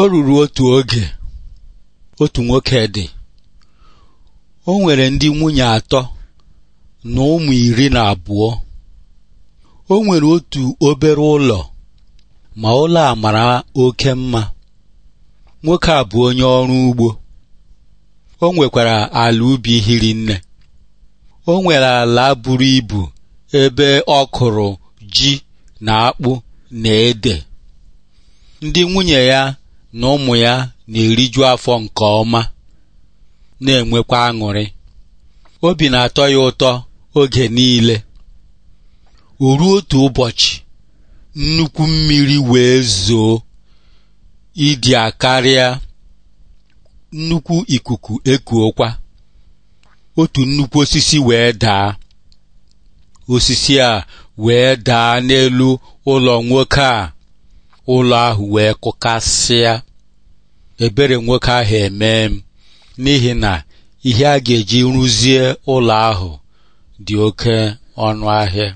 o ruru otu oge otu nwoke dị o nwere ndị nwunye atọ na ụmụ iri na abụọ o nwere otu obere ụlọ ma ụlọ a mara oke mma nwoke a bụ onye ọrụ ugbo o nwekwara ala ubi hiri nne o nwere ala buru ibu ebe ọ kụrụ ji na akpụ na ede ndị nwunye ya na ụmụ ya na-eriju afọ nke ọma na-enwekwa aṅụrị obi na-atọ ya ụtọ oge niile o otu ụbọchị nnukwu mmiri wee zoo ịdị akarịa nnukwu ikuku ekuokwa otu nnukwu osisi wee daa osisi a wee daa n'elu ụlọ nwoke a ụlọ ahụ wee kụkasịa ebere nwoke ahụ emee m n'ihi na ihe a ga-eji rụzie ụlọ ahụ dị oke ọnụ ahịa